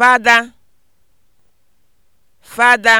fada fada